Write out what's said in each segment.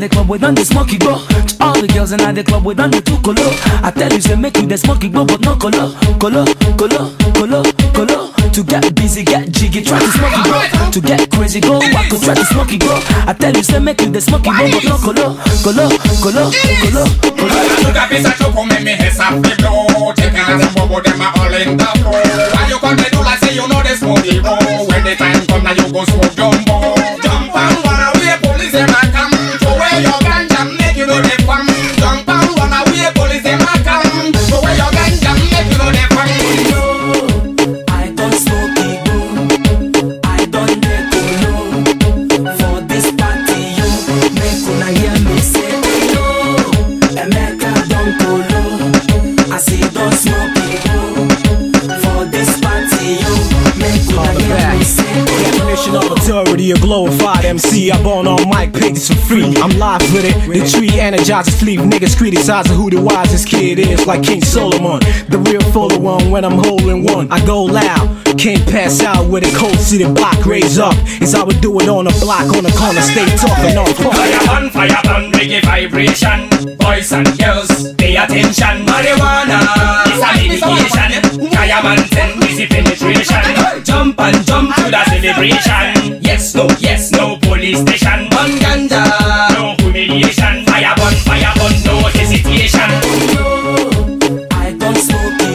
the club we done the smoky go. All the girls in the club we done the two color. I tell you say make you the smoky go, but no color, color, color, color, color. To get busy, get jiggy, try to smoky go. To get crazy, go walk, try to smoky go. I tell you say make you the smoky go, but no color, color, color, color, color. Why you do like say you know smoky go? When the time come now you go smoke certified MC. I born on mic, pick this for free. I'm live with it. The tree energizes, sleep niggas criticizing who the wisest kid is, like King Solomon. The real fuller one when I'm holding one. I go loud, can't pass out with a cold city block raise up. It's how we do it on the block, on the corner, stay talking on fuck. Fire on, fire on, reggae vibration. Boys and girls, pay attention. Marijuana is a medication. Diamond and easy penetration. Jump and jump to the celebration. no yes, no police station. On ganja, no humiliation. Fire burn, fire burn, no hesitation. No, I don't smoke I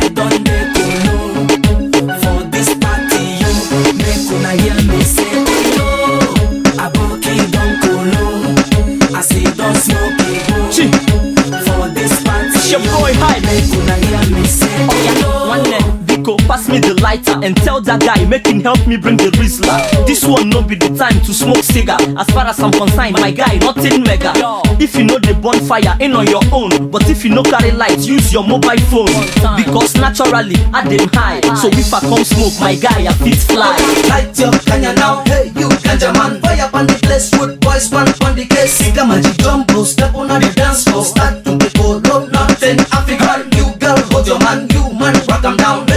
make for party you make una hear me say no. don I smoke For hear me say. me the lighter and tell that guy make him help me bring the Rizla This one no be the time to smoke cigar As far as I'm concerned, my guy, nothing mega If you know the bonfire, ain't on your own But if you no carry light, use your mobile phone Because naturally, I dey high So if I come smoke, my guy, I fit fly Light your kanya now, hey you ganja man Fire on the place, good boys, man on the case Siga magic jumbo, step on the dance floor Start to people, nothing African, you girl, hold your man You man, rock them down